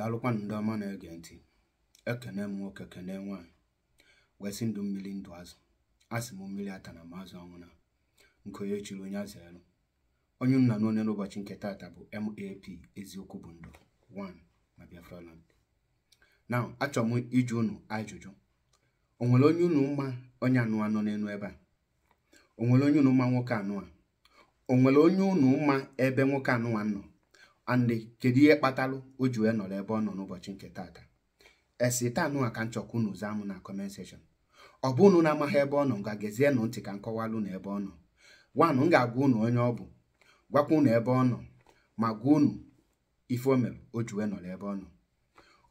daalụkwanụ ndị ọma na-ege ntị ekene m nwoke kene nwaanyị wesị ndụ mmiri ndụ azụ asị m mmiri ata na mazụ ọnwụ na nke onye chiri onye azụ elu onye nna na onye n'ụbọchị nke taata bụ map eziokwu bụ ndụ 1 na biafra land now achọrọ m iji unu ajụjụ o nwere onye unu mma onye anụ anọ n'elu ebe a o nwere onye unu mma nwoke anụ a nwere onye unu mma ebe nwoke anụwa nọ and kedu ihe kpatalụ o ji wee nọrọ ebe ọ nọ n'ụbọchị nke taata esi tanụ a ka nchọkwa unu zaa m na comment section ọ bụ unu na-amaghị ebe ọ nọ nga gezie nụ ntị ka nkọwalụ na ebe ọ nọ wanụ m ga-agwa unu onye ọ bụ gwakwa unu ebe ọ nọ ma gwa unu ife o ji wee nọrọ ebe ọ nọ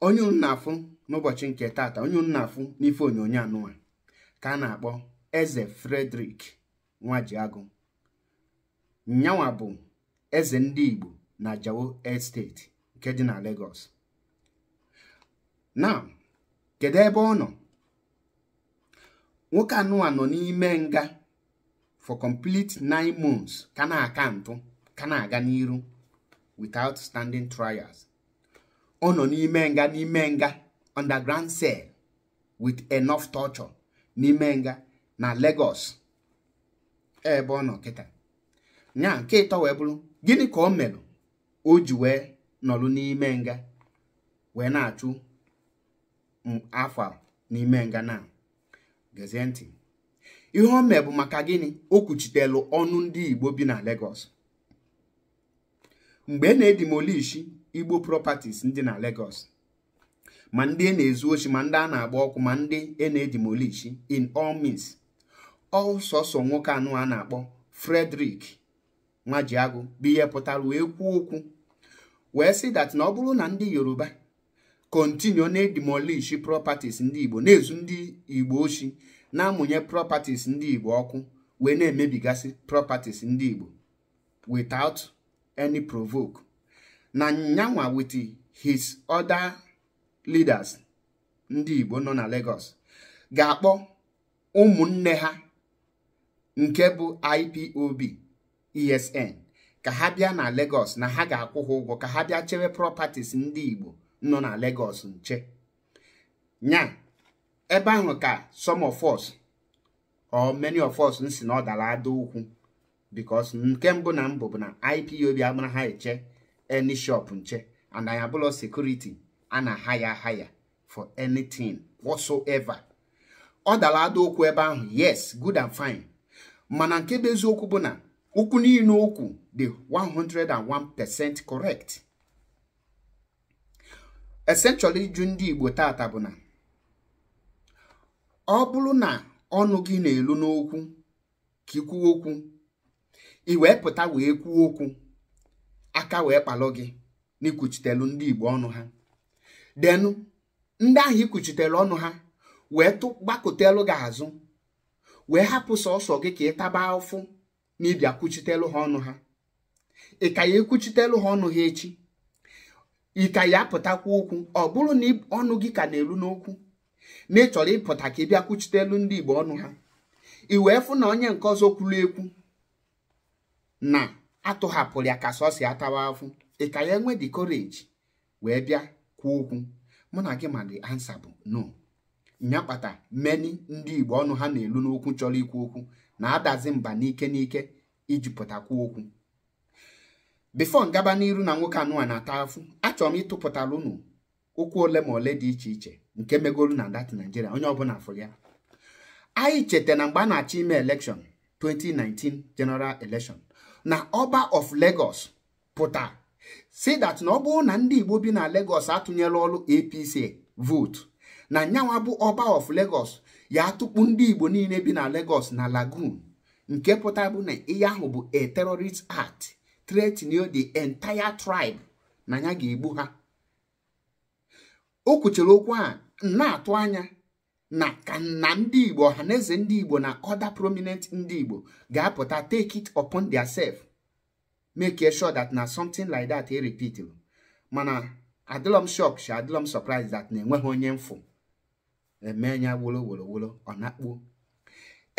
onye unu na-afụ n'ụbọchị nke taata onye unu na-afụ n'ife onyonyo anụnwa ka a na-akpọ eze Frederick Nwajiagụ nyanwa bụ eze ndị Igbo na Jawo Estate nke dị na Lagos na kedu ebe ọ nọ nwoke anụwa nọ n'ime nga for complete nine months ka na-aka ntụ ka na-aga n'iru without standing trials ọ nọ n'ime nga n'ime nga underground cell with enough torture n'ime nga na Lagos ebe ọ nọ kịta nya nke ịtọ wee bụrụ gịnị ka ọ mere o ji wee nọrụ n'ime nga wee na-achụ afọ n'ime nga na gezie ntị ihe o mee maka gịnị o kwuchitelu ọnụ ndị Igbo bi na Lagos mgbe e na-edimolishi Igbo properties ndị na Lagos ma ndị e na-ezu ma ndị a na-agba ọkụ ma ndị e na-edimolishi in all means ọ sọsọ nwoke anụ a na-akpọ Frederick Nwajiagụ bụ ihe pụtara wee kwuo okwu wee sị dat na ọ bụrụ na ndị yoruba kontinuo na-edemolish properties ndị igbo na-ezu ndị igbo oshi na-amụnye properties ndị igbo ọkụ wee na-emebigasị properties ndị igbo without any provoke na nyanwa with his other leaders ndị igbo nọ na Lagos ga-akpọ ụmụnne ha nke bụ IPOB ESN ka ha bịa na Lagos na ha ga-akwụ ha ụgwọ ka ha bịa chebe properties ndị Igbo nọ na Lagos nche nya ebe ahụ ka some of us or many of us nsi na ọ dara ada ukwu because nke mbụ na mbụ bụ na IPOB na ha eche any shop nche and anyị abụlọ security a na haya haya for anything whatsoever ọ dara ada okwu ebe ahụ yes good and fine mana nke bụ eziokwu bụ na ukwu niile okwu dị 101% correct essentially ịjụ ndị Igbo tata bụ na ọ bụrụ na ọnụ gị na-elu n'okwu ka ikwuo okwu ị wee pụta wee kwuo okwu aka wee kpalụ gị n'ikuchitelu ndị Igbo ọnụ ha denu ndị ahụ ikuchitelu ọnụ ha wee gbakọtelu gị azụ wee hapụ sọsọ gị ka ị taba ụfụ na ị bịa kwuchitelu ha ọnụ ha ị ka ya ekwuchitelu ha ọnụ ha echi ị ka ya apụtakwa okwu ọ bụrụ na ọnụ gị ka na-eru n'okwu na ị chọrọ ịpụta ka ị bịa kwuchitelu ndị Igbo ọnụ ha ị wee fụ na onye nke ọzọ kwuru ekwu na atụghapụrụ ya ka sọsi atawa afụ ị ka ya enwe dị courage wee bịa kwuo okwu mụ na gị ma the ansa bụ no nyakpata meni ndị Igbo ọnụ ha na-elu n'okwu chọrọ ikwu okwu na-adazi mba n'ike n'ike ijupụtakwu okwu bifo ngaba n'iru na nwoke anụnwa na-ata afụ achọrọ m ịtụpụtara unu okwu ole ma ole dị iche iche nke megolu na dat Naijiria onye ọbụla afọ ya anyị cheta na mgbe a na-achọ ime elekshọn 2019 general election na ọba of legos pụta si dat na ọ bụrụ na ndị Igbo bi na legos atụnyela ọrụ APC vote na nyanwa bụ ọba of Lagos ya atụkpu ndị Igbo niile bi na Lagos na Lagoon nke pụtara bụ na ihe ahụ bụ a terrorist act threatening the entire tribe na ya ga-egbu ha o kwuchara okwu a na-atụ anya na ka na ndị Igbo ọhaneze ndị Igbo na other prominent ndị Igbo ga-apụta take it upon theirself make sure that na something like that e repeat mana adịlọm shock shi adịlọm surprise that na enweghị onye mfụ mee ya wolo wolo wolo ọ na-akpuo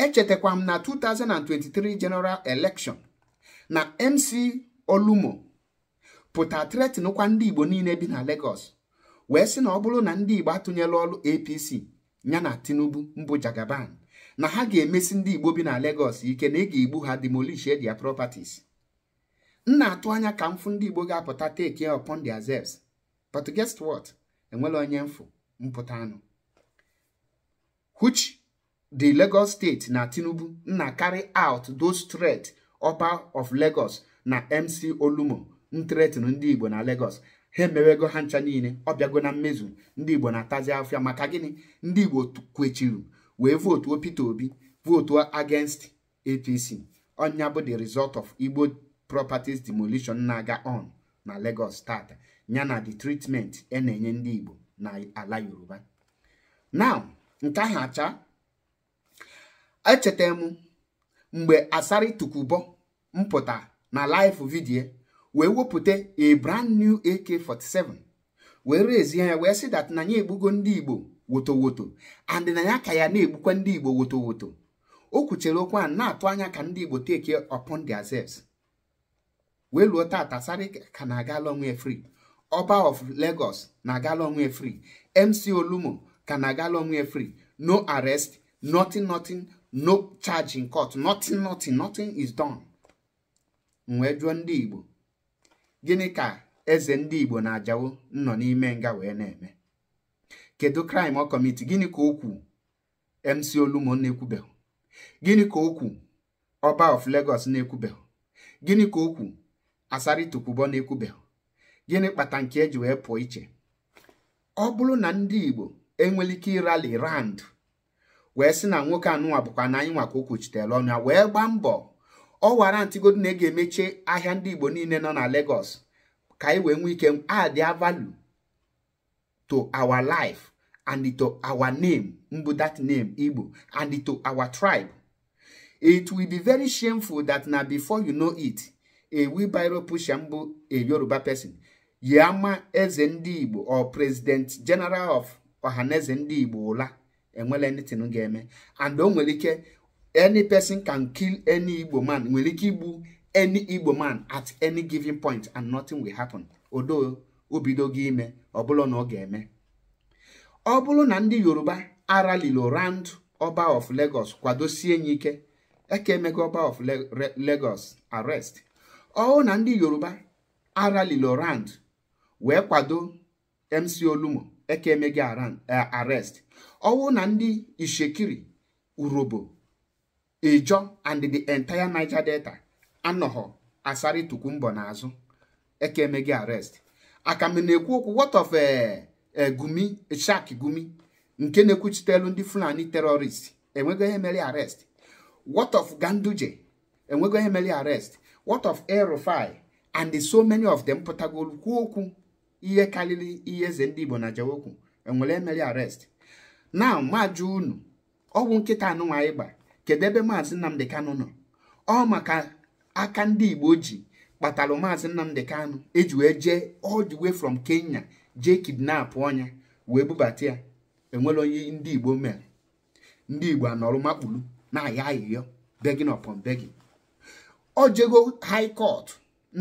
echetakwa m na 2023 general election na MC Olumo pụta tretinụkwa ndị Igbo niile bi na Lagos wee sị na ọ bụrụ na ndị Igbo atụnyela ọrụ APC ya na Tinubu mbụ Jagaban na ha ga-emesi ndị Igbo bi na Lagos ike na ị e ga-egbu ha demolish their properties m na-atụ anya ka mfu ndị Igbo ga-apụta take care their themselves but guess what enwere onye mfu mpụta anụ which the Lagos State na Tinubu na carry out those threats upper of Lagos na MC Olumo ntretinu ndị Igbo na Lagos ha emewego ha ncha niile ọ na mmezu ndị Igbo na-atazi afịa maka gịnị ndị Igbo kwechiri wee votuo Peter Obi votuo against APC ọnya bụ the result of Igbo properties demolition na-aga on na Lagos tata na the treatment e na-enye ndị Igbo na ala Yoruba now nke ahụ acha echeta m mgbe Asari Tukubo mpụta na live vidio wee wepụta a brand new AK47 wee rezie ya wee sị na ya egbugo ndị Igbo wotowoto andịnanya ka ya na-egbukwa ndị Igbo wotowoto o kwuchere okwu a na-atụ anya ka ndị Igbo take upon themselves wee luo tata Asari ka na aga onwe free Oba of Lagos na aga onwe free MC Olumo Kanagalo Mwe free. No arrest, nothing, nothing, no charge in court, nothing, nothing, nothing is done. wee jụọ ndị Igbo. Gịnị ka eze ndị Igbo na ajawo nọ n'ime nga wee na-eme? Kedu crime ọ kọmiti? Gịnị ka o MC Olumo na Gịnị ka o oba Ọba of Lagos na-ekwubeghị? Gịnị ka o kwu na-ekwubeghị? Gịnị kpata nke eji wee pụọ iche? Ọ bụrụ na ndị Igbo enwere ike ịrali rand wee sị na nwoke anụnwa bụkwa na anyị nwa ka ọnụ ya wee gbaa mbọ ọ wara ntigodo na ị e ga-emechi ahịa ndị Igbo niile nọ na Lagos ka anyị wee nwee ike value to our life and to our name mbụ that name Igbo and to our tribe it will be very shameful that na before you know it a wheelbarrow pusher mbụ a Yoruba person yi eze ndị Igbo or president general of ohaneze ndị igbo ụla enwela anything ga-eme and o nwere ike any person can kill any igbo man nwere ike igbu any igbo man at any giving point and nothing will happen odo obido gị ime ọ bụrụ na ọ ga-eme ọ bụrụ na ndị yoruba aralilo rand ọba of lagos kwadosie nye ike eke emego ọba of lagos arrest ọhụụ na ndị yoruba aralilo rand wee kwado mc ekeme gị eh, arrest ọwụ na ndị Ishekiri Urobo Ijo and the entire Niger Delta anọghọ asari tuku mbọ n'azụ ekeme gị arrest akami na-ekwu okwu what of eh, eh, Gumi shak Gumi nke na-ekwuchitelu ndị Fulani terrorist enwego ihe mere arrest what of Ganduje enwego ihe arrest what of El and and so many of them pụtagolu kwuo okwu ihe karịrị ihe eze ndị igbo na jewokwu enwere emeri arrest na maajụ unu ọgwụ nkịta anụnwa ịgba kedu ebe maazị nnamdị kanụ nọ ọ maka aka ndị igbo ji kpatara maazị nnamdị kanụ eji wee jee all the way from kenya jee kidnap ọnya wee bubata ya enwere onye ndị igbo mere ndị igbo anọrụ makpuru na-aya ayịyọ begị upon begging o jego high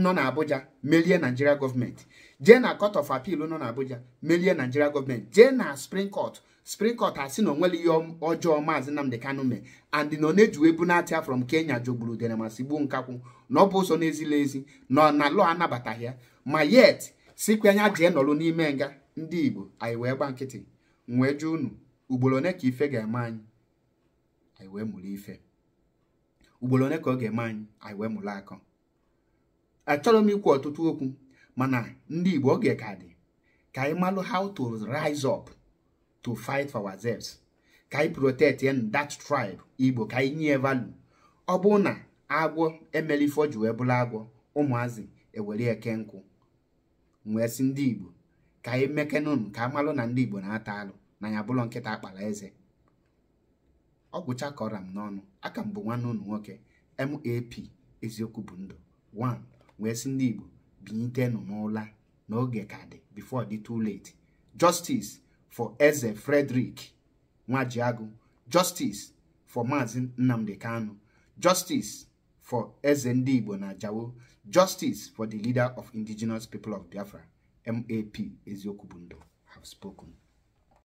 nọ na abuja merie naijiria gọọmenti jee na court of appeal nọ n'Abuja melie Nigeria gọọmenti jee na Supreme Court Supreme Court asị na onwere ihe ọjọọ maazị Nnamdi Kanu mee and nọ na-ejiwe n'atia from Kenya jogburu Udenemasi gbuo nkakwụ na ọ bụ ụzọ na ezi nọ na lọọ anabataghị ya ma yet sikwa anya jee nọrụ n'ime nga ndị Igbo anyị wee gba nkịtị wee jụ unu ugboro one ka ife ga-eme anyị anyị wee mụrụ ife ugboro one ka ọ ga-eme anyị anyị wee mụrụ akọ achọrọ m ikwu ọtụtụ okwu mana ndị Igbo oge ka dị ka anyị malụ how to rise up to fight for ourselves ka anyị protect that tribe Igbo ka anyị nye valu ọ bụrụ na agwọ emeli ife wee bụrụ agwọ ụmụazị ewere eke nkwụ wee si ndị Igbo ka anyị mekenụnụ ka amalụ na ndị Igbo na-ata alụ na ya nkịta akpara eze ọgwụcha kọrọ m n'ọnụ aka m bụ nwanne ụnụ nwoke MAP eziokwu bụ ndụ 1 wee si ndị Igbo binyitenụ no n'oge ka before the too late justice for eze frederick nwajiagụ justice for Mazin nnamdi kanu justice for eze Bonajawu. na jawo justice for the leader of indigenous people of biafra map Ezio Kubundo, have spoken